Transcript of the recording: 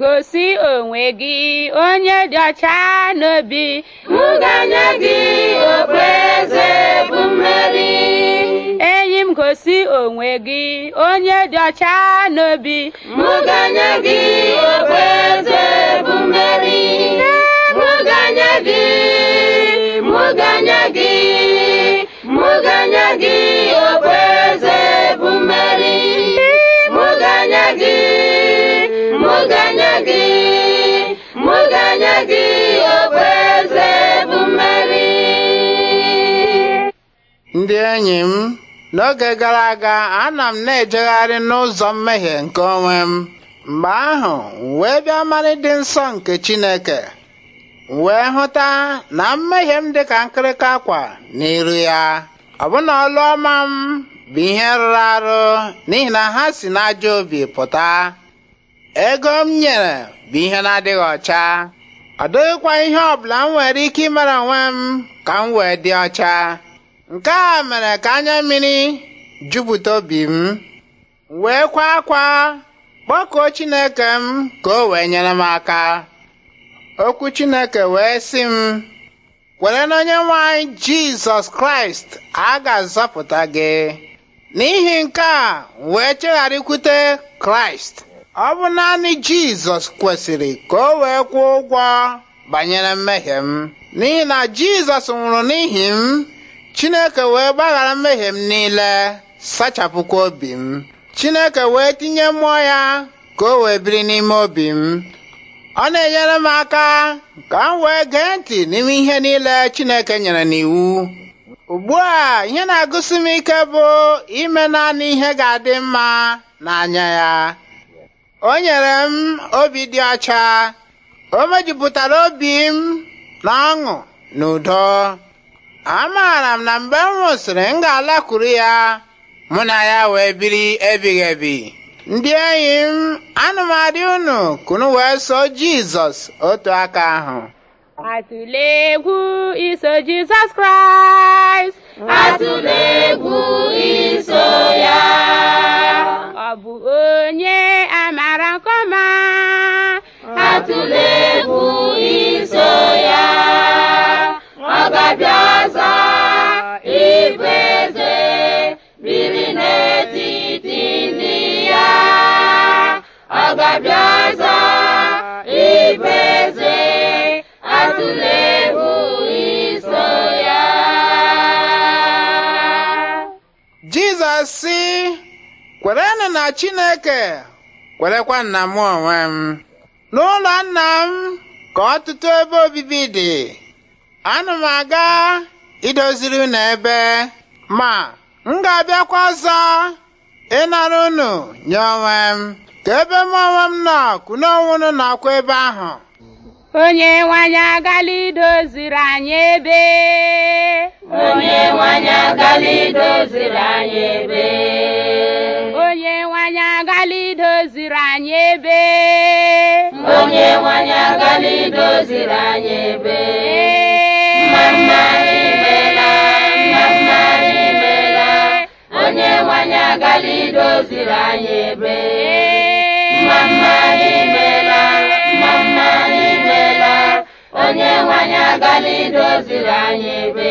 Gosi onwe gị onye dị ọcha n'obi nganye gị okpueze bụ mmeri enyi m gosi onwe gị onye dị ọcha n'obi nganye gị okpueze bụ mmeri nganye gị ndị enyi m n'oge gara aga ana m na-ejegharị n'ụzọ mmehie nke onwe m mgbe ahụ wee bịa mara ịdị nsọ nke Chineke wee hụta na mmehie m dịka nkịrịka akwa n'iru ya ọbụna ọlụ ọma m bụ ihe rụrụ arụ n'ihi na ha si n'ajọ obi pụta ego m nyere bụ ihe na-adịghị ọcha ọ dịghịkwa ihe ọbụla m nwere ike ịmara onwe m ka m wee dị ọcha nke a mere ka anya mmiri jupụta obi m wee kwa akwa kpọkuo chineke m ka o wee nyere m aka okwu chineke wee sị m kwere onye nwanyị jizọs kraịst a ga-azọpụta gị n'ihi nke a wee chegharịkwute kraịst ọ bụ naanị jizọs kwesịrị ka o wee kwụọ ụgwọ banyere mmehie m n'ihi na jizọs nwụrụ n'ihi m chineke wee gbaghara mmehie m niile sachapụkwa obi m chineke wee tinye mmụọ ya ka o wee biri n'ime obi m ọ na-enyere m aka ka m wee gee ntị n'ime ihe niile chineke nyere n'iwu ugbu a ihe na-agụsi m ike bụ ime naanị ihe ga-adị mma n'anya ya o nyere m obi dị ọcha o mejupụtara obi m na ọṅụ na udo amaara m na mgbe m nwụsịrị m ga-alakwuru ya mụ na ya wee biri ebighị ebi ndị enyi m anụmadị unu kunu wee so jizọs otu aka ahụ atụle egwu iso jizọs kraịst atụle egwu iso ya bụ biri n'etiti ndị ya ọ ga-abịa ọzọ ịbụ eze atụla iso ya jizọs sị kwerenụ na chineke kwerekwa nna m onwe m n'ụlọ nna m ka ọtụtụ ebe obibi dị ana m aga idoziri unu ebe ma m ga-abịakwa ọzọ ịnara unu nye onwe m ka ebe m onwe m nọ kụna onwe nakwa ebe ahụ onye nwanyị agala idoziri anyị ebe onye nwanyị agala idoziri anyị ebe onye nwanyị agala idoziri anyị ebe onye nwanyị agala idoziri anyị ebe agala idoziri anyị ebe mmamma anyị imela mmamma imela onye nwanyị anyị agala idoziri anyị ebe